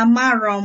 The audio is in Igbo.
amarọ m